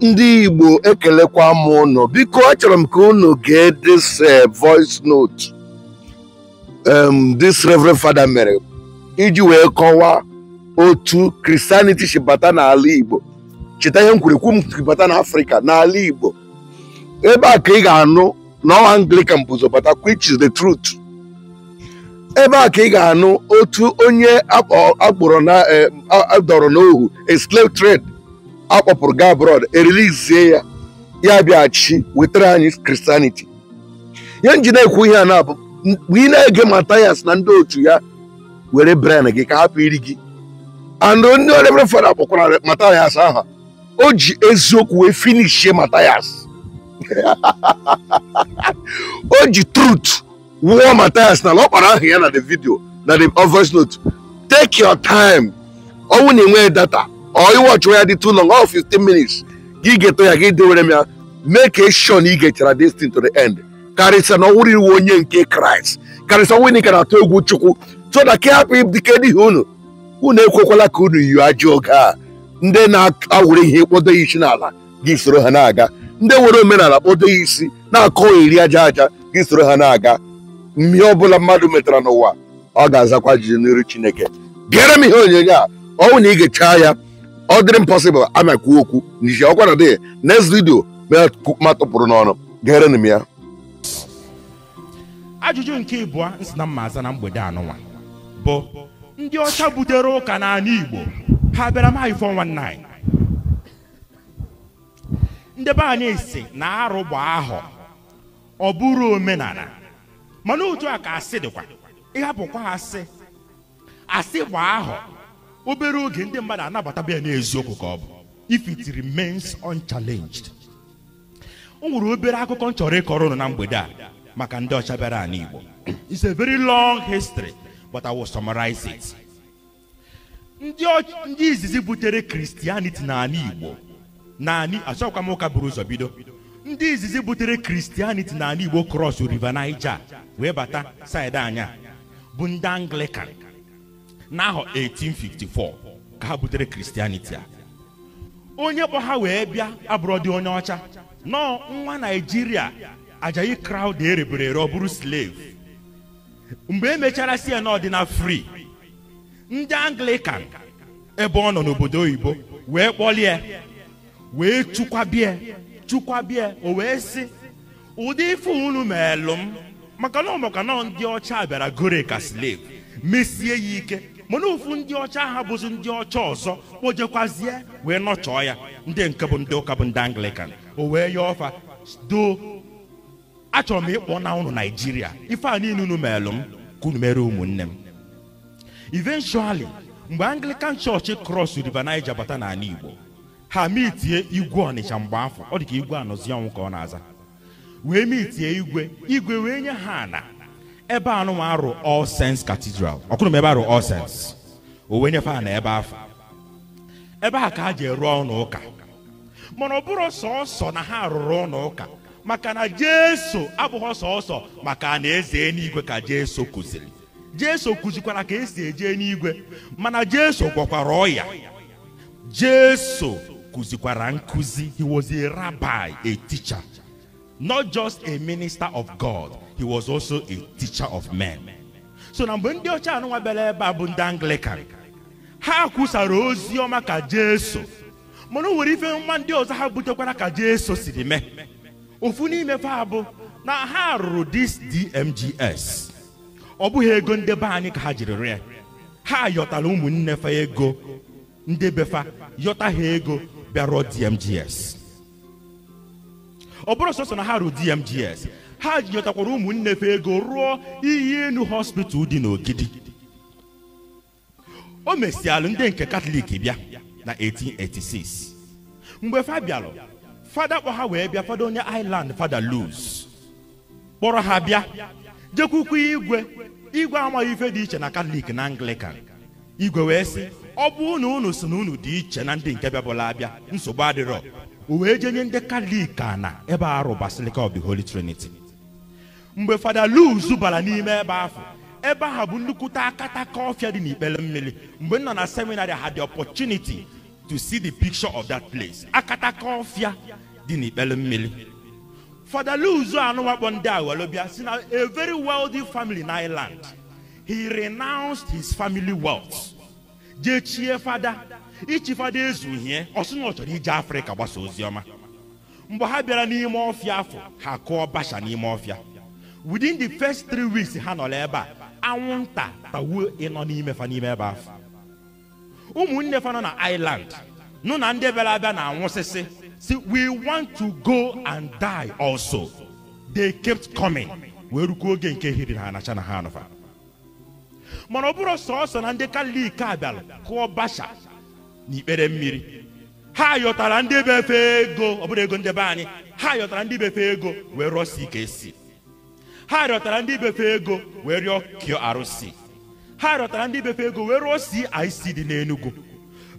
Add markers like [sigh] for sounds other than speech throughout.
ndị Igbo ekelekwa m unu biko achọrọ m ka unu gee dis eh, voice note um this reverend father mere iji wee kọwaa otu Christianity si bata n'ala Igbo cheta ihe m kwuru ekwu bata n'Africa n'ala Igbo ebe a ka ị ga-anụ na ọwa Anglican bụzọ bata which is the truth ebe a ka ị ga-anụ otu onye akpọrọ na eh, dọrọ n'ohu a slave trade akpọpụrụ gaa abroad erilizie ya ya bịaghachi wetara anyị kristianity ya nji na-ekwu ihe a na-abụ mgbe ị na-ege Mathias na ndị otu ya were bren gị ka hapụ iri gị and ndị ọdebere fada kpọkwara matayas aha o ji eziokwu wee finishie Mathias [laughs] o ji truth wụọ Mathias na ọ kpara aha ya na the video na the uh, voice note take your time ọnwụ na-enweghị data ọ ọchụwa ya dị too long ọ 15 minutes gị ga-eto ya gị dewere m ya mee ka eshọ na ị ga destin to the end karịsịa na ọwụrụ iwu onye nke kraịst karịsịa nwunye ka na-atụ egwu chukwu so na ka hapụ dike n'ihi unu unu ekwekwala ka unu yi ajọ oge a ndị na-awụrụ ihe kpodo ya isi n'ala gị soro ha na-aga ndị nwere omenala kpodo ya isi na-akọ iri aja aja gị soro ha na-aga mmehie ọbụla mmadụ metara n'ụwa ọ ga-azakwa jiri n'iru chineke bịara m ihe onyonyo a ọnwụ na ị ya ọ dịrị m pọsịbụl ama kwuo okwu n'ihi ọkwa na dị next vidio ma tụpụrụ n'ọnụ gere m ya ajụjụ nke ịbụọ nsị na mma aza na mgbede anụnwa bụ ndị ọcha butere ụka n'ala Igbo ha bịara maị 419 ndị be anyị si na arụ ahụ ọ bụrụ omenala mana otu a ka asị dịkwa ịhapụkwa asị asị gba ahụ. obere oge ndị mmadụ anabata ya n'eziokwu ka ọ bụ if it remains unchallenged o nwere obere akụkọ m chọrọ ịkọrọ ụnụ na mgbede a maka ndị ọcha bịara anyị Igbo is a very long history but I will summarize it ndị izizi butere Christianity n'ala Igbo naanị achọkwa m ụka buru ụzọ bido ndị izizi butere Christianity n'ala Igbo cross River Niger wee bata saịdị anya bụ ndị Anglican n'ahọ 1854 ka ha butere kristianiti a onye kpọ ha wee bịa abụrọ dị onye ọcha nọọ nwa naijiria Ajayi Crowther erebere ere ọ bụrụ slave mgbe emechara si ya n'ọdịna free ndị anglikan ebe ọ nọ n'obodo oyibo wee kpọlie wee chukwabie chukwabie o wee sị ụdị ife unu meelụ m maka na ọmaka nọ ndị ọcha bịara gore ka slev mesie ya ike mana ofu ndị ọcha ha bụzi ndị ọcha ọzọ kpojekwazie wee nọchọọ ya ndị nke bụ ndị ụka bụ ndị anglikan o wee ya ọfa doo. achọrọ m ịkpọ na ụnụ naijiria ife a niile unu meelụ m ka mere ụmụnne m eventually mgbe anglikan chọọchị kros river naija bata n'ala igbo ha mitie igwe ọnịcha mgbe afọ ọ dị ka igwe anọzi ọnwụ ka ọ na-aza wee mitie igwe igwe wee nye ha ana ebe a nụnwa arụ all sense cathedral ọkụrụ m ebe arụ all sense owe nyefe a na ebe afọ ebe a ka a ji rụọ ụlọ ụka mana ọ bụrụ sọọsọ na ha rụrụ ụlọ ụka maka na jesu abụghị sọọsọ maka na eze n'igwe ka jesu kụziri jesu kụzikwara ka esi eje n'igwe mana jesu gwọkwara ọya jesu kụzikwara nkụzi he was eticha rabbi not just a minister of God, he was also a teacher of men. So na mgbe ndị ọcha anụnwa bịara ebe a bụ ndị Anglican ha kwusara ozi ọma ka Jesu mana o ife nwa ndị ọzọ ha butekwara ka Jesu siri mee ofu n'imefe abụ na ha rụrụ dis DMGS ọ bụghị ego ndị be anyị ka ha jiri rịa ha yọtara ụmụnne fa ego yọta ha ego DMGS ọ bụrụ sọsọ na ha ruo dmgs ha jikọtakwara ụmụnne fe ego rụọ iyi enu hospital dị n'ogidi o mesialụ ndị nke katọlik bịa na 1886 mgbe fa fada kpọ ha wee bịa fada onye island fada luz kpọrọ ha bịa jekwukwu igwe igwe amaghị ife dị iche na katọlik na anglican igwe wee sị ọ bụ na unu si na unu dị iche na ndị nke bịabụla abịa nsogbu adịrọ o wee jee nye ndị kalik na ebe arụ Basilica of the Holy Trinity mgbe fada Luz bara n'ime ebe ahụ ebe ahụ bụ nnukwuta akataka ọfịa dị n'ikpere mmiri mgbe nọ na seminarị had the opportunity to see the picture of that place akataka ọfịa dị n'ikpere mmiri fada Luz nwakpo ndị a were bịa si na a very wealthy family in Ireland he renounced his family wealth jechie fada ichifada ezuhie ọ sị na ọ chọrọ ije afrịka gbasa oziọma mgbe ha bịara n'ime ọfịa afọ ha kụọ basha n'ime ọfịa within the first three weeks ha nọrọ ebe a anwụnta tawuo ịnọ n'ime fa n'ime ebe afọ ụmụnne fa nọ na island nụ na ndị bịara abịa na-anwụsịsị si we want to go and die also they kept coming wee rukwuo oge nke hiri ha anacha na ha anụfa mana ọ bụrụ sọọsọ na ndị kalik a kụọ basha n'ikpere mmiri ha yọtara ndị befe ego ọ bụrụ ego ndebe anyị ha yọtara ndị befe ego wee rụọsi ka esi ha rịọtara ndị befe ego wee rịọ kio arụsị ha rịọtara ndị befe ego wee rụọ CIC dị n'Enugu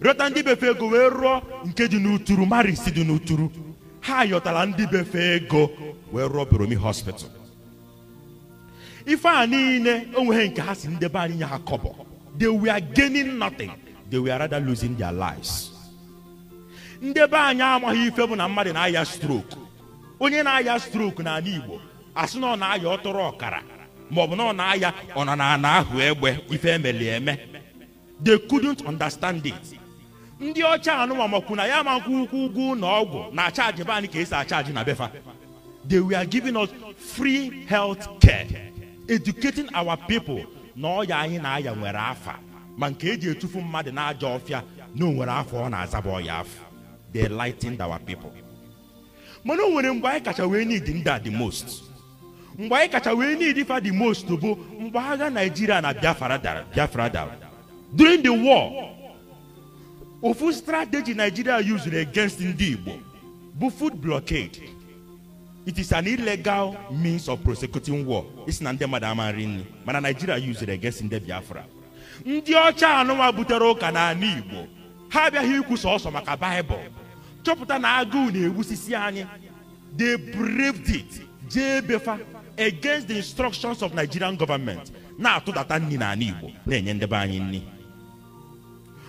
rịọta ndị befe ego wee rụọ nke dị n'uturu Marisi dị n'uturu ha yọtara ndị befe ego wee rụọ Boromi hospital ife a niile onweghị nke ha si ndebe anyị nye ha kọbọ they were gaining nothing. they were rather losing their lives ndị be anyị amaghị ife bụ na mmadụ na-aya stroke onye na-aya stroke n'ala Igbo asị na ọ na-aya ọtụrụ ọkara ma ọ bụ na ọ na-aya ọ nọ na ana ahụ egbe ife emeli eme they couldn't understand it ndị ọcha anụwa makwu na ya makwu ukwu ugwu na ọgwụ na achaji be anyị ka esi achaji na befa they were giving us free health care educating our people na ọya anyị na-aya nwere afa ma nke eji etufu mmadụ n'ajọ ọfịa na onwere afọ ọ na-azaba ọya afọ they lightened our people mana o nwere mgbe anyị kacha wee need ndị the most mgbe anyị kacha wee need fa the most bụ mgbe agha naijiria na biafra dara biafra dara during the war ofu strategy nigeria used against ndị igbo bụ food blockade it is an illegal means of prosecuting war isi na ndị mmadụ ama nri nri mana nigeria used against ndị biafra ndị ọcha anụnwa butere ụka n'ala igbo ha abịaghị ikwu sọsọ maka baịbụl chọpụta na agụụ na-egbusisi anyị they braved it jee against the instructions of nigerian government na-atụdata nri n'ala igbo na-enye ndebe anyị nri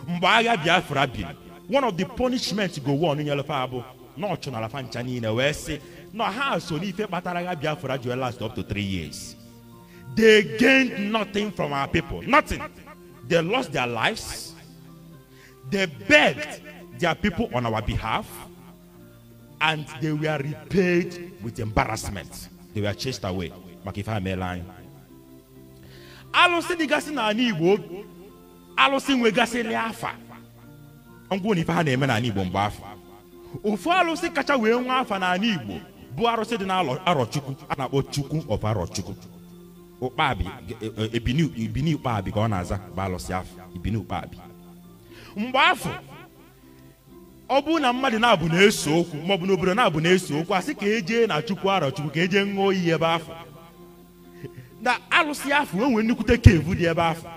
mgbe agha biafra biri one of the punishment go one nyelefa abụ na ọchụnalafa ncha niile wee sị na ha so n'ife kpatara agha biafra ji last up to three years they gained nothing from our people nothing. They lost their lives. They begged their people on our behalf. And they were repaid with embarrassment. They were chased away. Makifa Meline. Alụsị dịgasị n'ala Igbo alụsị nwegasịrị afa ngwa na ife ha na-eme n'ala Igbo mgbe afọ ofu alụsị kacha wee nwa afa n'ala Igbo bụ arụsị na n'arọchukwu a na-akpọ Chukwu of Arọchukwu ụkpabi ebini ụkpabi ka ọ na-aza bụ alụsị afọ ibini ụkpabi mgbe afọ ọ bụrụ na mmadụ na-abụ na-eso okwu maọbụ na obodo na-abụ na-eso okwu a sị ka eje na chukwu arọ chukwu ka eje ṅụọ iyi ebe afọ na alụsị afọ enwe nwere nnukwute kevu dị ebe afọ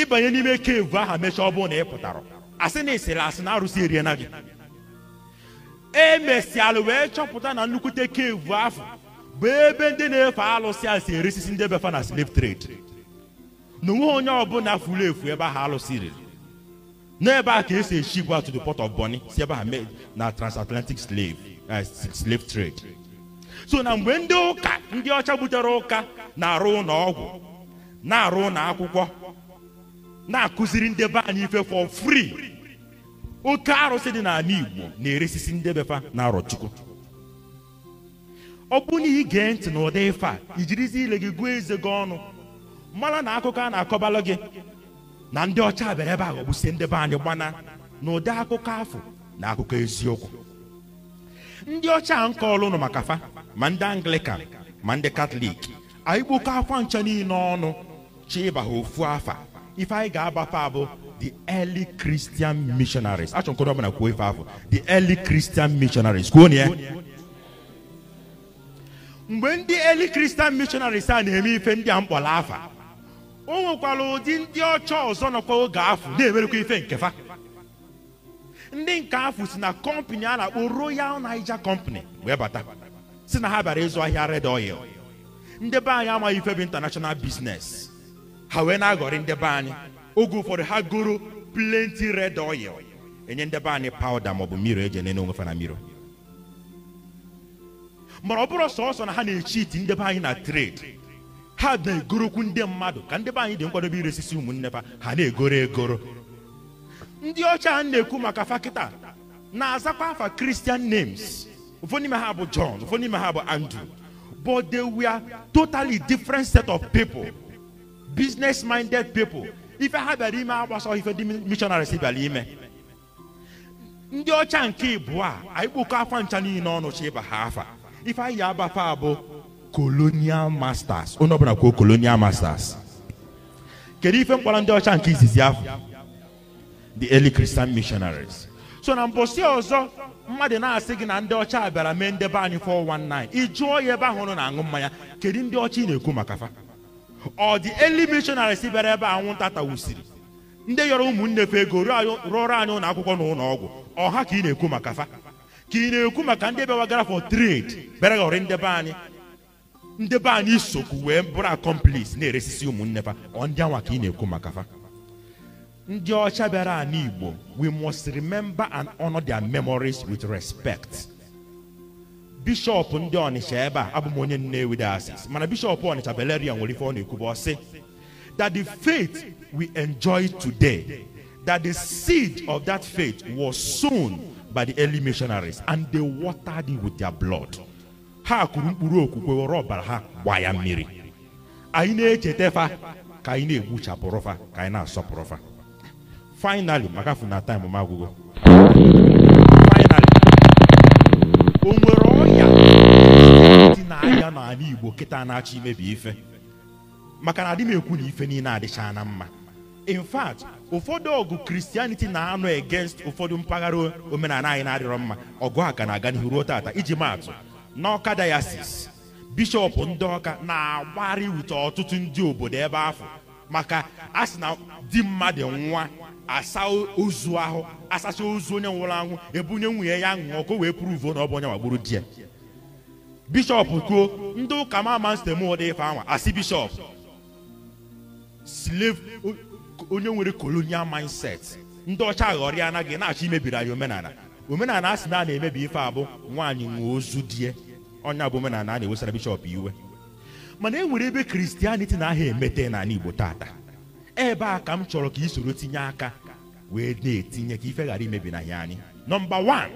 ịbanye n'ime kevu ahụ mechaa ọ bụrụ na ị pụtara asị na ịsịrị asị na arụsị eriena gị emesịalụ wee chọpụta na nnukwute kevu afọ bụ ebe ndị na-efe alụsị a si eresisi ndị befa na slave trade na onweghị onye ọbụla furu efu ebe ahụ alụsị riri n'ebe a ka esi echi gwa to the port of Bonny si ebe ha mee na transatlantic slave eh, slave trade so na mgbe ndị ụka ndị ọcha butere ụka na-arụ ụlọ ọgwụ na-arụ ụlọ akwụkwọ na-akụziri ndị be anyị ife for free oke arụsị dị n'ala Igbo na-eresisi ndị befa na arọchukwu ọ bụrụ na ị gee ntị n'ụdị ife a ijirizi ile gị gụọ eze gị ọnụ mara na akụkọ a na-akọbalụ gị na ndị ọcha bịara ebe a ghọgbusie ndị be anyị gbana na ụdị akụkọ afọ na akụkọ eziokwu ndị ọcha nke ọlụnụ maka fa ma ndị anglikan ma ndị katọlik anyị kpokọ afa ncha niile ọnụ chi ịba ha ofu afa ife anyị ga-abafa abụ the early christian missionaries achọ nkọrọ ọbụla kwuo ife afọ the early christian missionaries kwuo na ya mgbe ndị eli kristian mishonaris a na-eme ife ndị a mkpọrọ afa o nwekwara ụdị ndị ọcha ọzọ nọkwa oge afọ na-emerekwa ife nke fa ndị nke afụ si na kọmpani a na-akpọ royal niger company wee bata si na ha bịara ịzụ ahịa red oil ndị be anyị amaghị ife bụ international business ha wee na-aghọrị ndị be anyị oge ụfọdụ ha goro plenty red oil enye ndebe anyị pawuda maọbụ mmiri eji enene onwefe na mmiri mara ọ bụrụ sọsọ na ha na iti ndebe anyị na trade ha na-egorokwu ndị mmadụ ka ndebe anyị dị nkwadobe iresisi ụmụnne ha ha na-egoro egoro ndị ọcha na-ekwu maka fakịta na-azakwa afa kristian names ụfọdụ n'ime ha bụ John ụfọdụ n'ime ha bụ Andrew but they were totally different set of people business minded people ife ha bịara ime agbasọ ife ndị missionaries bịara ime ndị ọcha nke ịbụọ a anyị kpụkọ afa ncha niile ọnụ chi ịba ha afa anyị ya abafa abụ colonial masters onye ọbụla kwuo colonial masters kedu ife mkpọrọ ndị ọcha nke izizi afọ the early christian missionaries so na mbosi ọzọ mmadụ na-asị gị na ndị ọcha bịara mee ndebe anyị 419 ịjụọ ya ebe ahụ nọ na-aṅụ mmanya kedu ndị ọcha ị na-ekwu maka fa ọ dị eli missionaries bịara ebe anwụnta tawusiri ndị yọrọ ụmụnne fe ego rụọrọ anyị ụlọ akwụkwọ na ụlọ ọgwụ ọha ka ị na-ekwu maka fa kine kuma ka ndị bịawagara for trade bịara ghọrọ ndị be anyị ndị be anyị isokwu wee bụrụ akọmplis na-eresisi ụmụnne fa ndị anwa ka ị na-ekwu maka fa ndị ọcha bịara anyị igbo we must remember and honor their memories with respect bishọp ndị ọnịcha ebe a abụ m onye nnewi diocese mana bishọp ọnịcha belerian nwere ife ọ na-ekwuba ọsị that the faith we enjoy today that the seed of that faith was sown by the early missionaries and they watered it with their blood ha kụrụ mkpụrụ okwukwe were ọbara ha gbaa ya mmiri anyị na-echeta fa ka anyị na-egbuchapụrụ fa ka anyị na-asọpụrụ fa finally maka afọ na time m agwụgo finally o nwere dị n'ala Igbo kịta na-achọ imebi ife maka na adị m ekwu na ife niile adịchaa na mma in ụfọdụ ọgụ kristianiti na-anọ against ụfọdụ mpaghara omenala anyị na-adịrọ mma ọgụ aka na-aga n'ihu ruo tata iji maatụ n'ọka dayasis bishọp ndị ọka na-agbarị wute ọtụtụ ndị obodo ebe afọ maka asị na di mmadụ nwa asa ozu ahụ asacha ozu onye nwụrụ anwụ ebunye nwunye ya ṅụọ ọkụ wee pụrụ na ọ bụ onye gbagburu di ya bishọp kwuo ndị ụka mama stem ụdị ife anwa asị bishọp onye nwere kolonial mindset ndị ọcha aghọrịa anaghị na-achọ imebiri anyị omenala omenala a sị na a na-emebi ife abụ nwaanyị nwee ozu die ọnya bụ omenala a na-ewesara bishọp iwe mana e nwere ebe kristianiti na aha emete n'ala igbo tata ebe a ka m chọrọ ka i soro tinye aka wee na-etinye ka ife ghara imebi na ya anyị nọmba wan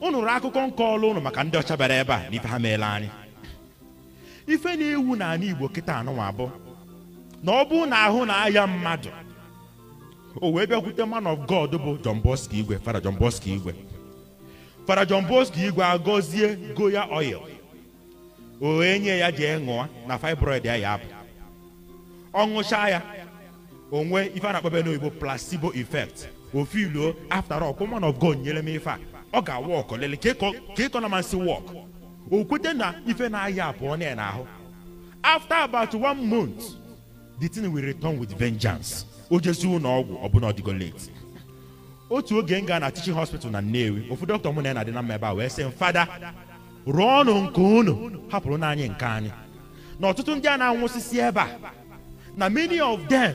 unu akụkọ nke ọlụ ụnụ maka ndị ọcha bịara ebe a na ife ha meela anyị ife na-ewu n'ala igbo kịta anụnwa abụ na ọ bụrụ na ahụ na-aya mmadụ o wee bịakwute man of God bụ John Igwe fara John Igwe fara John Igwe agọzie goya oil o wee nye ya jee ṅụọ na fibroid ya ya ọ ṅụcha ya onwe ife a na-akpọbe n'oyibo placebo effect ofiluo after all man of God nyere m ife a ọ ga-awa ọkọlele ka ịkọna masị wọk o kwete na ife na-aya abụọ na ya ahụ. afta about one month the thing will return with vengeance o jezuo na ọgwụ ọbụna ọdịgo late otu oge m gaa na teaching hospital na Nnewi ofu dọkịta mụ na ya adị na mma ebe a wee sị m fada rụọ ọnụ nke unu hapụrụ n'anyị nke anyị na ọtụtụ ndị a na-anwụsịsị ebe a na many of them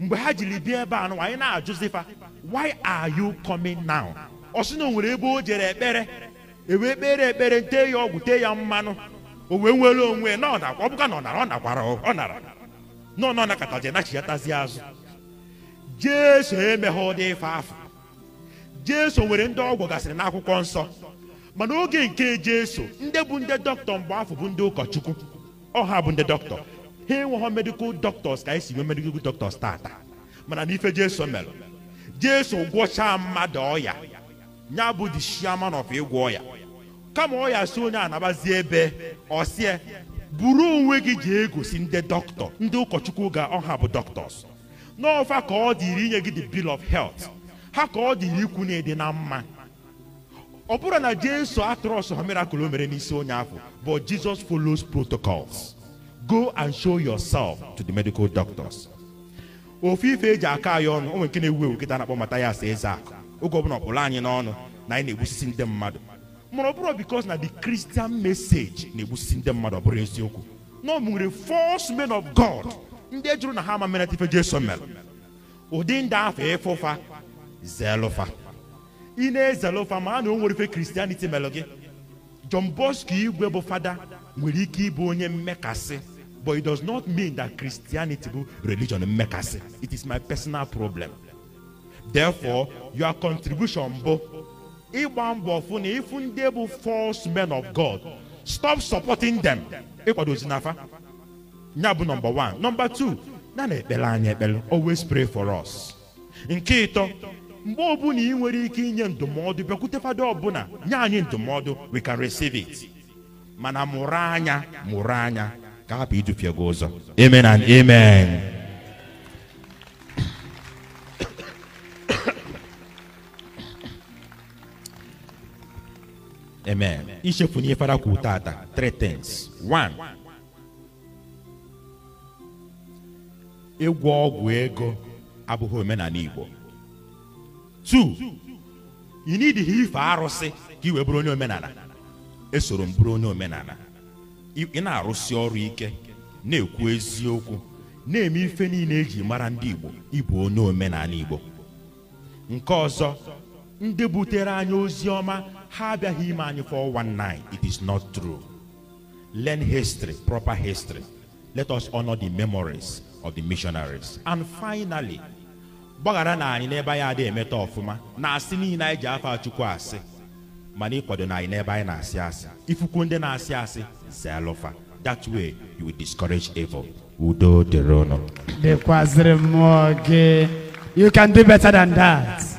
mgbe ha jiri bịa ebe a nụwa anyị na-ajụzifa why are you coming now ọ sị na o nwere ebe o jere ekpere ewee kpere ekpere tee ya ọgwụ tee ya mmanụ o wee nwere onwe ọ ọ bụka na ọ nara ọ nakwara ọ nara nọ nọ nakọtazie nachighatazie azụ jesu emeghe ụdị ife afọ jesu nwere ndị ọgwụ gasịrị n'akwụkwọ nsọ mana oge nke jesu ndị bụ ndị dọkịta mgbe afọ bụ ndị ụkọchukwu ọha bụ ndị dọkịta ha enweghị medikal dọktọs ka esi nwee medikal dọktọs taata mana n'ife jesu mere jesu gwọchaa mmadụ ọya ya bụ the chairman of ịgwọ ọya kama ọya si onye anabazie ebe ọsie buru onwe gị jee gosi ndị dọkịta ndị ụkọchukwu ga ọha bụ dọkịtọs n'ọfa ka ọ dịrị inye gị the bill of health ha ka ọ dịrị ikwu na ịdị na mma ọ bụrụ na jesu atrọs ha mirakụl o mere n'isi onye afọ but jesus follows protocols go and show yourself to the medical doctors ofe ife eji aka anyị ọnụ onwe nke na-ewu ewu kịta na-akpọ eze akụ oge ọbụla ọkpụrụ anyị n'ọnụ na anyị na-egbusisi ndị mmadụ mana ọ bụrụ because na the christian message na-egbusi ndị mmadụ ọ bụrụ eziokwu na false men of god ndị jụrụ na ha ama mere ife jesu mere ụdị ndị ahụ ịfụfa zelụfa ị na-ezelụfa ma a na o ife kristianity melụ gị john bosco igwe bụ fada nwere ike ịbụ onye mmekasị but it does not mean that christianity bụ religion mmekasị it is my personal problem therefore your contribution bụ ịgba mbọ fụ na ịfụ ndị bụ false men of God stop supporting them ịkwado ozinapa ya bụ nọmba one nọmba two na na ekpere anyị ekpere always pray for us nke ịtọ mgbe ọbụla ị nwere ike inye ndụmọdụ bịakwute fada ọbụla nye anyị ndụmọdụ we can receive it mana mụrụ anya mụrụ anya ka hapụ idufie gị ụzọ amen and amen Amen. Ichefu na ifara kwuru tata three things. One. Ịgwọ ọgwụ ego abụghị omenala Igbo. 2 Ị n'idighị ife arụsị ka bụrụ onye omenala. Esoro m onye omenala. Ị na-arụsi ọrụ ike na-ekwu eziokwu na-eme ife niile eji mara ndị Igbo ịbụ onye omenala Igbo. Nke ọzọ ndị butere anyị ozi ọma ha abịaghị ime anyị for one night it is not true learn history proper history let us honor the memories of the missionaries and finally gbaghara na anyị n'ebe anyị adịghị emeta ọfụma na asị niile anyị ji afọ chukwu asị mana ịkwado na anyị n'ebe anyị na-asị asị ifuku na-asị asị zelụfa that way you will discourage evil udo dịrị ụnụ mmụọ gị you can do better than that.